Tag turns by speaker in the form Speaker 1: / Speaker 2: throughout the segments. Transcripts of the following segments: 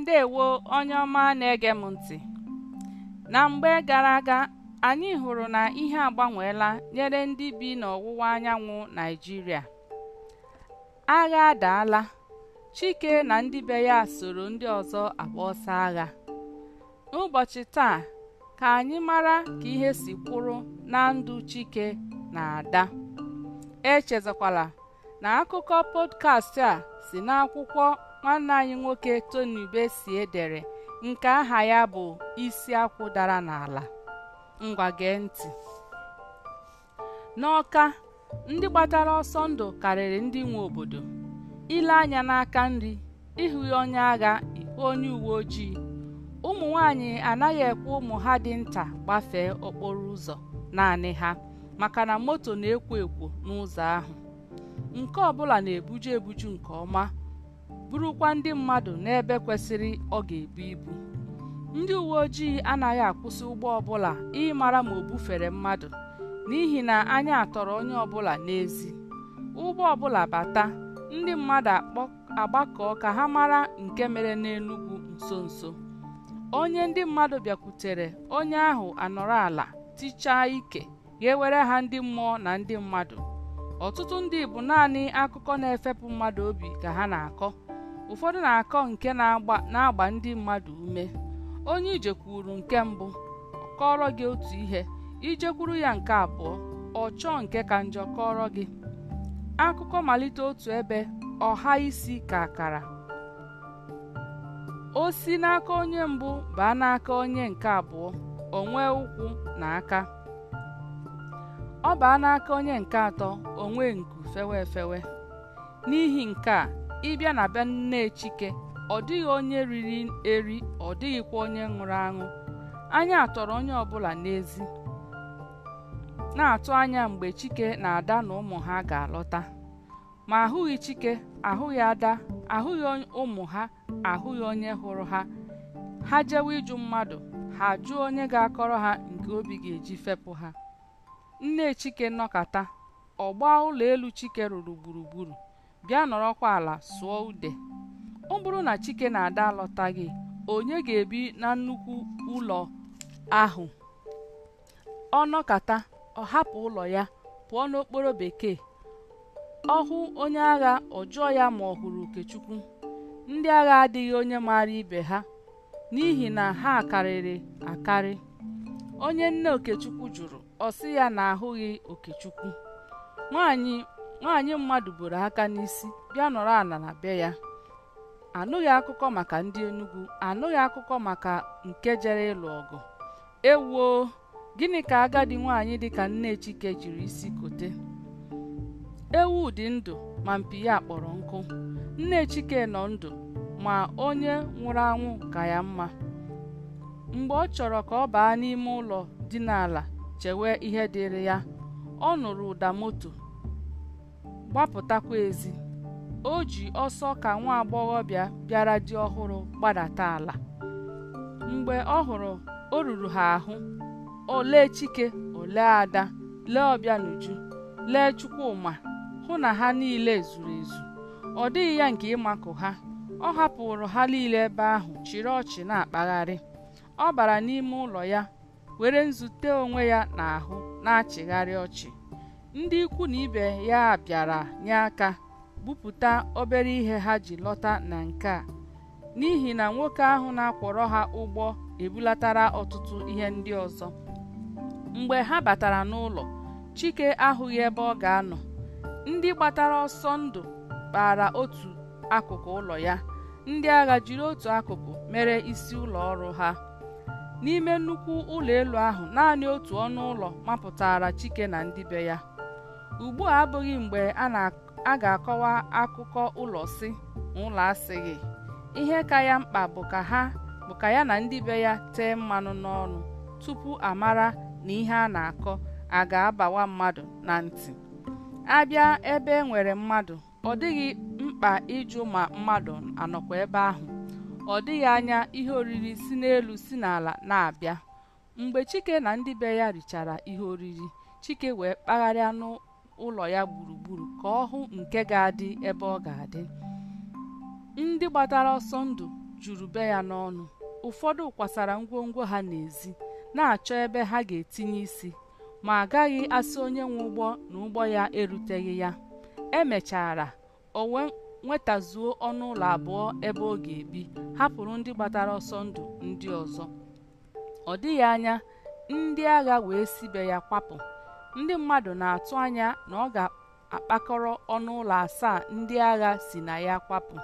Speaker 1: ndewo onye ọma na-ege m ntị na mgbe gara aga anyị hụrụ na ihe agbanweela nyere ndị bi n'ọwụwa anyanwụ Naịjirịa agha adaala Chike na ndị be ya soro ndị ọzọ agba ọsọ agha n'ụbọchị taa ka anyị mara ka ihe si kwụrụ na ndụ Chike na Ada echezakwala na akụkọ podcast a si n'akwụkwọ nwanne anyị nwoke Tony Besie dere nke aha ya bụ isi akwụ dara n'ala ngwa gee ntị n'ọka ndị gbatara ọsọ ndụ karịrị ndị nwe obodo ile anya n'aka nri ịhụ onye agha onye uwe ojii ụmụ nwanyị anaghị ekwe ụmụ ha dị nta gbafee okporo ụzọ naanị ha maka na moto na-ekwo ekwo n'ụzọ ahụ nke ọbụla na-ebuju ebuju nke ọma burukwa ndị mmadụ n'ebe kwesịrị ọ ga-ebu ibu ndị uwe ojii anaghị akwụsị ụgbọ ọbụla ịmara ma o bufere mmadụ n'ihi na anya atọrọ onye ọbụla n'ezi ụgbọ ọbụla bata ndị mmadụ agbakọọ ka ha mara nke mere n'Enugwu nso nso onye ndị mmadụ bịakwutere onye ahụ anọrọ ala tichaa ike ga-ewere ha ndị mmụọ na ndị mmadụ ọtụtụ ndị bụ naanị akụkọ na-efepụ mmadụ obi ka ha na-akọ ụfọdụ na-akọ nke na-agba ndị mmadụ ume onye ije kwuru nke mbụ kọọrọ gị otu ihe ijekwuru ya nke abụọ ọ chọọ nke ka njọ kọrọ gị akụkọ malite otu ebe ọha isi ka akara o si n'aka onye mbụ baa n'aka onye nke abụọ onwe nwee ụkwụ na aka ọ baa n'aka onye nke atọ o nwee nku fewe efewe n'ihi nke a ịbịa na be nne Chike ọ dịghị onye riri eri ọ dịghịkwa onye nwụrụ aṅụ anya atọrọ onye ọbụla n'ezi na-atụ anya mgbe Chike na Ada na ụmụ ha ga-alọta ma ahụghị Chike ahụghị Ada ahụghị ụmụ ha ahụghị onye hụrụ ha ha jewe ịjụ mmadụ ha jụọ onye ga-akọrọ ha nke obi ga-eji fepụ ha nne Chike nọkata ọgba ụlọ elu Chike rụrụ gburugburu bịa nọrọkwa ala sụọ ude ọ bụrụ na chike na ada alọtaghị onye ga-ebi na nnukwu ụlọ ahụ ọ nọkata ọ hapụ ụlọ ya pụọ n'okporo bekee ọ hụ onye agha ọ jụọ ya ma ọ hụrụ okechukwu ndị agha adịghị onye maara ibe ha n'ihi na ha karịrị akarị onye nne okechukwu jụrụ ọ ya na ahụghị okechukwu nwaanyị nwaanyị mmadụ buru aka n'isi bịa nọrọ ala na be ya anụghị akụkọ maka ndị Enugu anụghị akụkọ maka nke jere ịlụ ọgụ ewuo gịnị ka agadi nwaanyị dịka nne Chike jiri isi kote ewu dị ndụ ma mpi ya kpọrọ nkụ nne Chike nọ ndụ ma onye nwụrụ anwụ ka ya mma mgbe ọ chọrọ ka ọ baa n'ime ụlọ dị n'ala chewe ihe dịrị ya ọ nụrụ ụda moto gbapụtakwa ezi o ji ọsọ ka nwa agbọghọbịa bịara di ọhụrụ gbadata ala mgbe ọ hụrụ o ruru ha ahụ olee chike olee ada lee n'uju lee chukwuma hụ na ha niile zuru ezu ọ dịghị ya nke ịmakụ ha ọ hapụrụ ha niile ebe ahụ chịrị ọchị na-akpagharị ọ bara n'ime ụlọ ya were nzute onwe ya n'ahụ na-achịgharị ọchị ndị ikwu na ibe ya bịara nye aka bupụta obere ihe ha ji lọta na nke a n'ihi na nwoke ahụ na-akwọrọ ha ụgbọ ebulatara ọtụtụ ihe ndị ọzọ mgbe ha batara n'ụlọ chike ahụghị ebe ọ ga-anọ ndị gbatara ọsọ ndụ kpara otu akụkụ ụlọ ya ndị agha jiri otu akụkụ mere isi ụlọ ọrụ ha n'ime nnukwu ụlọ elu ahụ naanị otu ọnụ ụlọ mapụtara chike na ndị be ya ugbu a abụghị mgbe a ga-akọwa akụkọ ụlọ si na ụlọ asịghị ihe ka ya mkpa bụ ka ha bụ ka ya na ndị be ya tee mmanụ n'ọnụ tupu amara na ihe a na-akọ a ga-abawa mmadụ na ntị abịa ebe e nwere mmadụ ọ dịghị mkpa ịjụ ma mmadụ anọkwa ebe ahụ ọ dịghị anya ihe oriri si n'elu si n'ala na-abịa mgbe chike na ndị be ya richara ihe oriri chike wee kpagharịa n'ụlọ ụlọ ya gburugburu ka ọ hụ nke ga-adị ebe ọ ga-adị ndị gbatara ọsọ ndụ juru be ya n'ọnụ ụfọdụ kwasara ngwongwo ha n'ezi na-achọ ebe ha ga-etinye isi ma agaghị asị onye nwe ụgbọ na ụgbọ ya eruteghị ya emechara o nwetazuo ọnụ ụlọ abụọ ebe ọ ga-ebi hapụrụ ndị gbatara ọsọ ndụ ndị ọzọ ọ dịghị anya ndị agha wee si be ya kwapụ ndị mmadụ na-atụ anya na ọ ga-akpakọrọ ọnụ ụlọ asaa ndị agha si na ya kwapụ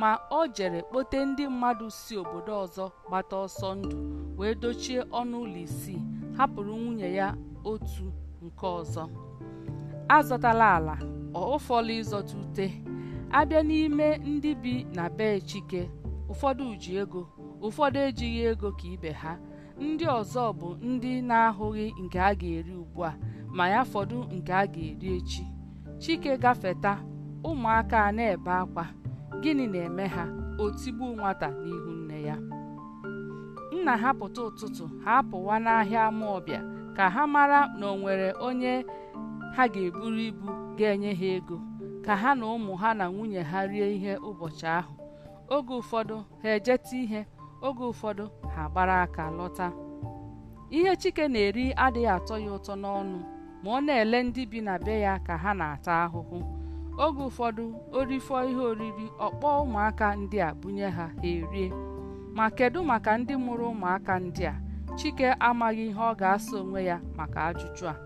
Speaker 1: ma o jere kpote ndị mmadụ si obodo ọzọ gbata ọsọ ndụ wee dochie ọnụ ụlọ isii hapụrụ nwunye ya otu nke ọzọ azọtala ala ụfọdụ ịzọta ute abịa n'ime ndị bi na be chike ụfọdụ ji ego ụfọdụ ejighị ego ka ibe ha ndị ọzọ bụ ndị na-ahụghị nke a ga-eri ugbu a ma ya fọdụ nke a ga-eri echi chike gafeta ụmụaka a na-ebe akwa gịnị na-eme ha otigbu nwata n'ihu nne ya nna ha pụta ụtụtụ ha apụwa n'ahịa ama ọbịa ka ha mara na o nwere onye ha ga-eburu ibu ga-enye ha ego ka ha na ụmụ ha na nwunye ha rie ihe ụbọchị ahụ oge ụfọdụ ha ejeta ihe oge ụfọdụ ha gbara aka lọta ihe chike na-eri adịghị atọ ya ụtọ n'ọnụ ma ọ na-ele ndị bi na be ya ka ha na-ata ahụhụ oge ụfọdụ orifọ ihe oriri ọkpọ ụmụaka ndị a bunye ha ha erie ma kedu maka ndị mụrụ ụmụaka ndị a chike amaghị ihe ọ ga-asa onwe ya maka ajụjụ a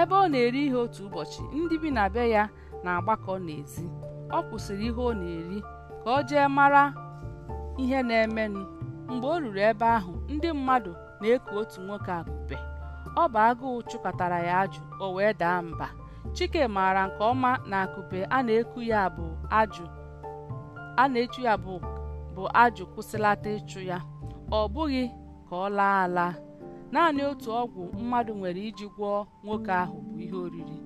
Speaker 1: ebe ọ na-eri ihe otu ụbọchị ndị bi na be ya na-agbakọ n'ezi ọ kwụsịrị ihe ọ na-eri ka ọ jee mara ihe na-emenụ mgbe o ruru ebe ahụ ndị mmadụ na-eku otu nwoke akụpe ọ bụ agụụ chụkọtara ya ajụ o wee daa mba chike maara nke ọma na akụpe a na-eku ya bụ ajụ a na-echu ya bụ bụ ajụ kwụsịlata ịchụ ya ọ bụghị ka ọ laa ala naanị otu ọgwụ mmadụ nwere iji gwọọ nwoke ahụ bụ ihe oriri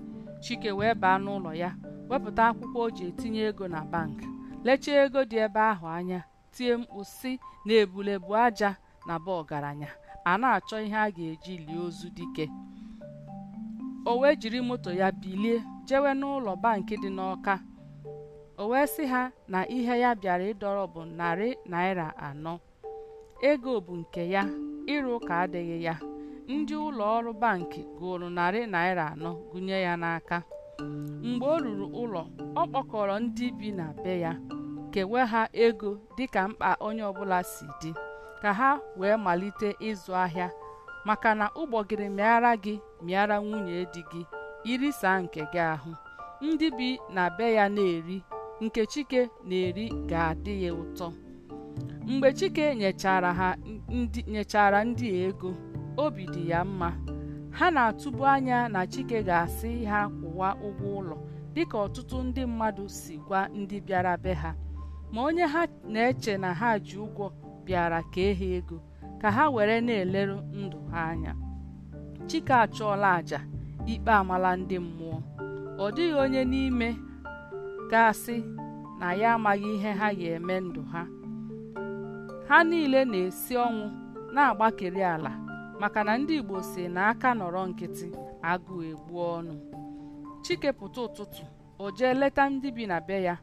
Speaker 1: chike wee baa n'ụlọ ya wepụta akwụkwọ o ji etinye ego na bank lechaa ego dị ebe ahụ anya tie mkpu si na ebulebu aja na ba ọgaranya a na-achọ ihe a ga-eji lie ozu dike o wee jiri moto ya bilie jewe n'ụlọ bankị dị n'Ọka o wee sị ha na ihe ya bịara ịdọrọ bụ narị naira anọ ego bụ nke ya ịrụ ụka adịghị ya ndị ụlọ ọrụ banki gụrụ narị naira anọ gụnye ya n'aka mgbe o ruru ụlọ ọ kpọkọrọ ndị bi na be ya kewe ha ego dịka mkpa onye ọbụla si dị ka ha wee malite ịzụ ahịa maka na ụgbọgịrị mịara gị mịara nwunye dị gị irisa nke gị ahụ ndị bi na be ya na-eri nke chike na-eri ga-adị ya ụtọ mgbe chike nyechara ndị nyechara ndị ego obi dị ya mma ha na-atụbu anya na chike ga-asị ha kwụwa ụgwọ ụlọ dịka ọtụtụ ndị mmadụ si gwa ndị bịara be ha ma onye ha na-eche na ha ji ụgwọ bịara kee ha ego ka ha were na-eleru ndụ ha anya chike achọọla aja ikpe amala ndị mmụọ ọ dịghị onye n'ime gasị na ya amaghị ihe ha ga-eme ndụ ha ha niile na-esi ọnwụ na-agbakeri ala maka na ndị Igbo si na aka nọrọ nkịtị agụ egbu ọnụ chike pụta ụtụtụ o jee leta ndị bi na be ya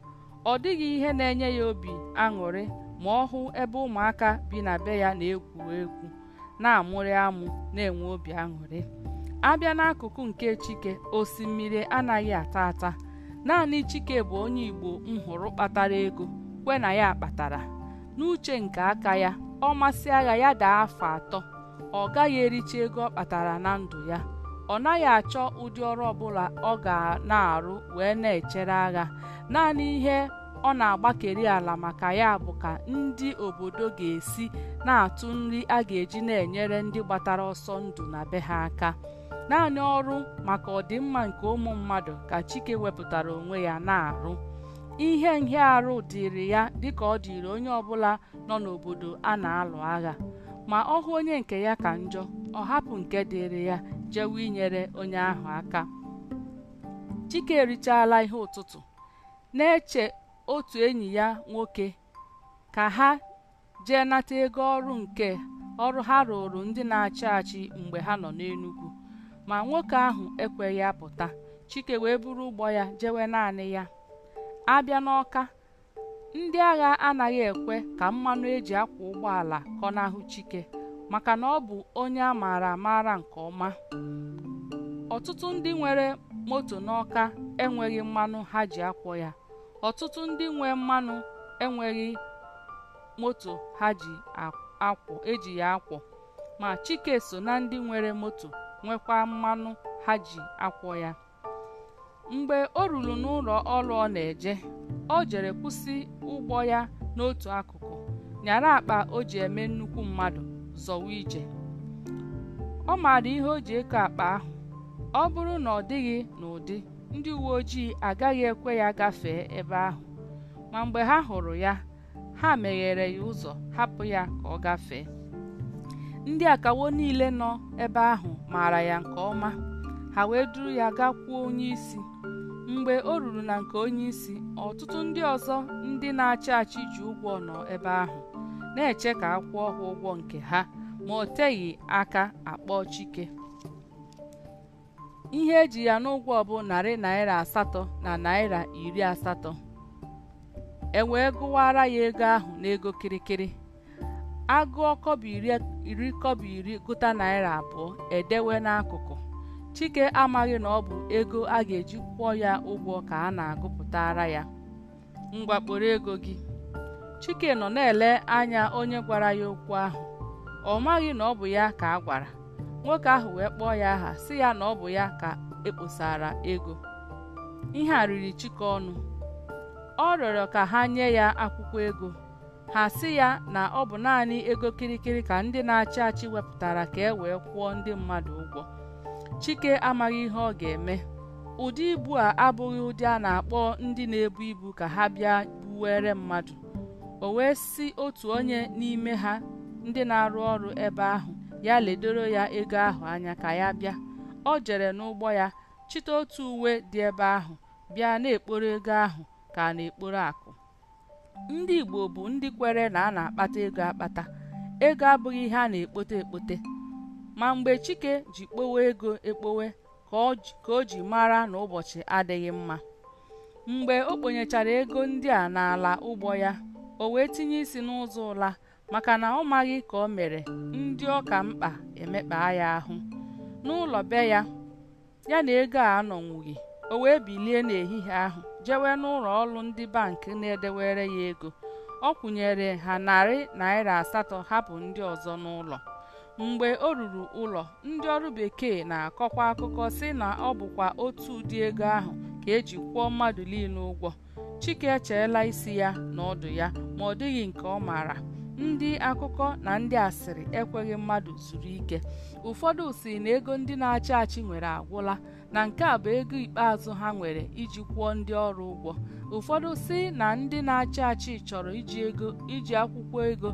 Speaker 1: ọ dịghị ihe na-enye ya obi aṅụrị ma ọ hụ ebe ụmụaka bi na be ya na-egwu egwu na-amụrị amụ na-enwe obi aṅụrị abịa n'akụkụ nke chike osimiri anaghị ata ata naanị chike bụ onye igbo m hụrụ kpatara ego kwe na ya kpatara n'uche nke aka ya ọ masị agha ya daa afọ atọ ọ gaghị ericha ego ọ kpatara na ndụ ya ọ naghị achọ ụdị ọrụ ọbụla ọ ga na-arụ wee na-echere agha naanị ihe ọ na-agbakeri ala maka ya bụ ka ndị obodo ga-esi na-atụ nri a ga-eji na-enyere ndị gbatara ọsọ ndụ na be ha aka naanị ọrụ maka ọdịmma nke ụmụ mmadụ ka Chike wepụtara onwe ya na-arụ ihe nhịarụ dịrị ya dịka ọ dịrị onye ọbụla nọ n'obodo a na-alụ agha ma ọ hụ onye nke ya ka njọ ọ hapụ nke dịrị ya jewe inyere onye ahụ aka Chike erichaala ihe ụtụtụ na-eche otu enyi ya nwoke ka ha jee nata ego ọrụ nke ọrụ ha rụrụ ndị na-achị achị mgbe ha nọ n'Enugwu ma nwoke ahụ ekweghị apụta Chike wee buru ụgbọ ya jewe naanị ya abịa n'Ọka ndị agha anaghị ekwe ka mmanụ eji akwọ ụgbọala kọnahụ Chike maka na ọ bụ onye a maara amaara nke ọma ọtụtụ ndị nwere moto n'Ọka enweghị mmanụ ha ji akwọ ya ọtụtụ ndị nwe mmanụ enweghị moto ha ji akwọ eji ya akwọ ma Chike so na ndị nwere moto nwekwa mmanụ ha ji akwọ ya mgbe o ruru n'ụlọ ọrụ ọ na-eje o jere kwụsị ụgbọ ya n'otu akụkụ nyara akpa o ji eme nnukwu mmadụ zọwa ije ọ maara ihe o ji eke akpa ahụ ọ bụrụ na ọ dịghị n'ụdị ndị uwe ojii agaghị ekwe ya gafee ebe ahụ ma mgbe ha hụrụ ya ha meghere ya ụzọ hapụ ya ka ọ gafee ndị akawo niile nọ ebe ahụ maara ya nke ọma ha wee duru ya gakwuo onye isi mgbe o ruru na nke onyeisi ọtụtụ ndị ọzọ ndị na-achị achị ji ụgwọ nọ ebe ahụ na-eche ka a kwụọ ha ụgwọ nke ha ma o teghị aka akpọ Chike ihe eji ya n'ụgwọ bụ narị naira asatọ na naira iri asatọ e wee gụwara ya ego ahụ n'ego kirikiri agụọ kọbụ iri kọbọ iri gụta naira abụọ edewe n'akụkụ chike amaghị na ọ bụ ego a ga-eji kwụọ ya ụgwọ ka a na-agụpụtara ya ngwa ego gị chike nọ na-ele anya onye gwara ya okwu ahụ ọ maghị na ọ bụ ya ka a gwara nwoke ahụ wee kpọọ ya aha si ya na ọ bụ ya ka ekposara ego ihe a riri Chike ọnụ ọ rịọrọ ka ha nye ya akwụkwọ ego ha si ya na ọ bụ naanị ego kirikiri ka ndị na-achị achị wepụtara ka e wee kwụọ ndị mmadụ ụgwọ Chike amaghị ihe ọ ga-eme ụdị ibu a abụghị ụdị a na-akpọ ndị na-ebu ibu ka ha bịa buwere mmadụ o wee si otu onye n'ime ha ndị na-arụ ọrụ ebe ahụ ya ledoro ya ego ahụ anya ka ya bịa ọ jere n'ụgbọ ya chịta otu uwe dị ebe ahụ bịa na-ekporo ego ahụ ka na-ekporo akụ ndị Igbo bụ ndị kwere na a na-akpata ego akpata ego abụghị ihe a na-ekpote ekpote ma mgbe Chike ji kpowe ego ekpowe ka o ji mara na ụbọchị adịghị mma mgbe o kponyechara ego ndị a n'ala ụgbọ ya o wee tinye isi n'ụzọ ụla maka na ọ maghị ka o mere ndị ọka mkpa emekpaa ya ahụ n'ụlọ be ya ya na ego a anọnwughị o wee bilie n'ehihie ahụ jewe n'ụlọ ọrụ ndị bankị na-edewere ya ego ọ kwụnyere ha narị naira asatọ hapụ ndị ọzọ n'ụlọ mgbe o ruru ụlọ ndị ọrụ bekee na-akọkwa akụkọ sị na ọ bụkwa otu ụdị ego ahụ ka eji kwụọ mmadụ niile ụgwọ Chike echeela isi ya na ọdụ ya ma ọ dịghị nke ọ maara ndị akụkọ na ndị asịrị ekweghị mmadụ zuru ike ụfọdụ si na ego ndị na-achị achị nwere agwụla na nke a bụ ego ikpeazụ ha nwere iji kwụọ ndị ọrụ ụgwọ ụfọdụ si na ndị na-achị achị chọrọ iji ego iji akwụkwọ ego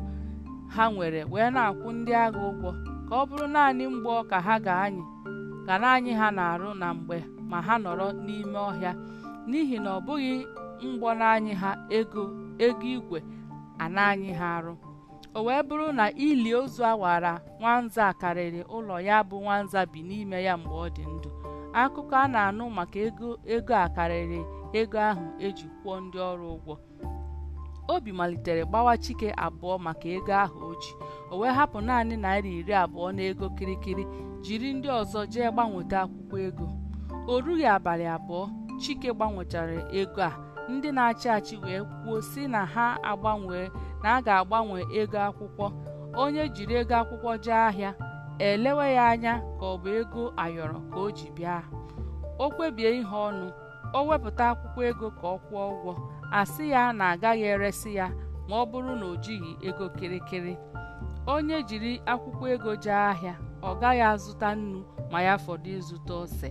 Speaker 1: ha nwere wee na-akwụ ndị agha ụgwọ ka ọ bụrụ naanị mgbe ka ha ga-anyị ka naanị ha na-arụ na mgbe ma ha nọrọ n'ime ọhịa n'ihi na ọ bụghị mgbọ na ha ego ego igwe a anyị ha arụ o wee bụrụ na ili ozu awara nwanza karịrị ụlọ ya bụ nwanza bi n'ime ya mgbe ọ dị ndụ akụkọ a na-anụ maka ego ego a karịrị ego ahụ eji kwụọ ndị ọrụ ụgwọ obi malitere gbawa chike abụọ maka ego ahụ o ji o wee hapụ naanị naira iri abụọ n'ego kirikiri jiri ndị ọzọ jee gbanweta akwụkwọ ego o rughị abalị abụọ chike gbanwechara ego a ndị na-achị achị wee kwuo si na ha agbanwee na a ga-agbanwe ego akwụkwọ onye jiri ego akwụkwọ jee ahịa elewe ya anya ka ọ bụ ego ayọrọ ka o ji bịa o kpebie ihe ọnụ o wepụta akwụkwọ ego ka ọ kwụọ ụgwọ asị ya na agaghị eresi ya ma ọ bụrụ na o jighị ego kịrịkịrị onye jiri akwụkwọ ego jee ahịa ọ gaghị azụta nnu ma ya fọdụ ịzụta ose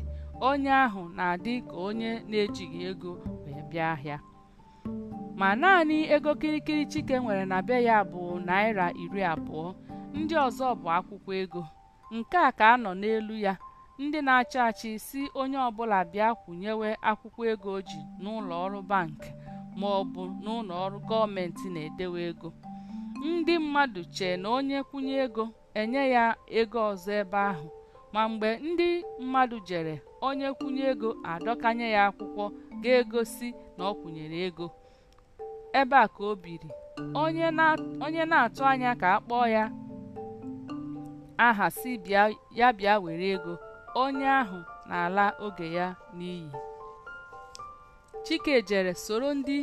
Speaker 1: onye ahụ na-adị ka onye na-ejighị ego ahịa ma naanị ego kirikiri Chike nwere na be ya bụ naira iri abụọ ndị ọzọ bụ akwụkwọ ego nke a ka a nọ n'elu ya ndị na-achị achị si onye ọbụla bịa kwụnyewe akwụkwọ ego ji n'ụlọ ọrụ bankị ma ọ bụ n'ụlọ ọrụ gọọmenti na-edewe ego ndị mmadụ chee na onye kwụnye ego enye ya ego ọzọ ebe ahụ ma mgbe ndị mmadụ jere onye kwụnye ego adọkanye ya akwụkwọ ga-egosi na ọ kwụnyere ego ebe a ka o biri onye na-atụ anya ka a kpọọ ya aha si ya bịa were ego onye ahụ na-ala oge ya n'iyi Chike jere soro ndị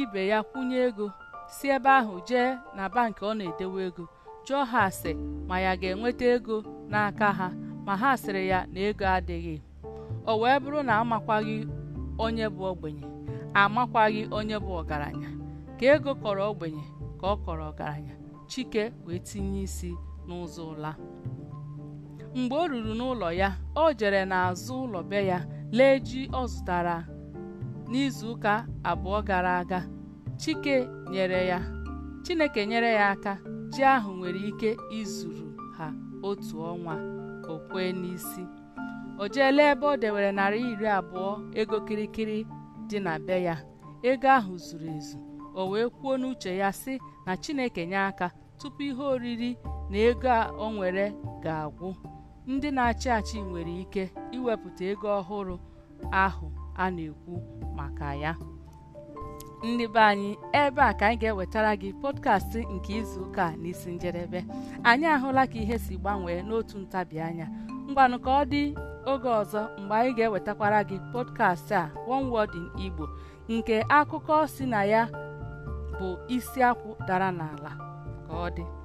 Speaker 1: ibe ya kwụnye ego si ebe ahụ jee na bankị ọ na-edewe ego jụọ ha ase ma ya ga-enweta ego n'aka ha ma ha sịrị ya na ego adịghị o wee bụrụ na amakwaghị onye bụ ogbenye amakwaghị onye bụ ọgaranya ka ego kọrọ ogbenye ka ọ kọrọ ọgaranya chike wee tinye isi n'ụzọ ụla mgbe o ruru n'ụlọ ya o jere n'azụ ụlọ be ya lee ji ọ zụtara n'izuụka abụọ gara aga chike nyere ya chineke nyere ya aka ji ahụ nwere ike izuru otu ọnwa o kwee n'isi o jeela ebe o dewere narị iri abụọ ego kirikiri dị na be ya ego ahụ zuru ezu o wee kwuo n'uche ya sị na Chineke nye aka tupu ihe oriri na ego a o nwere ga-agwụ ndị na-achị achị nwere ike iwepụta ego ọhụrụ ahụ a na-ekwu maka ya ndị anyị ebe a ka anyị ga-ewetara gị pọdkastị nke izuụka na n'isi njedebe anyị ahụla ka ihe si gbanwee n'otu ntabianya anya ngwanụ ka ọ dị oge ọzọ mgbe anyị ga-ewetakwara gị pọdkast a one in Igbo nke akụkọ si na ya bụ isi akwụ dara n'ala ka ọ dị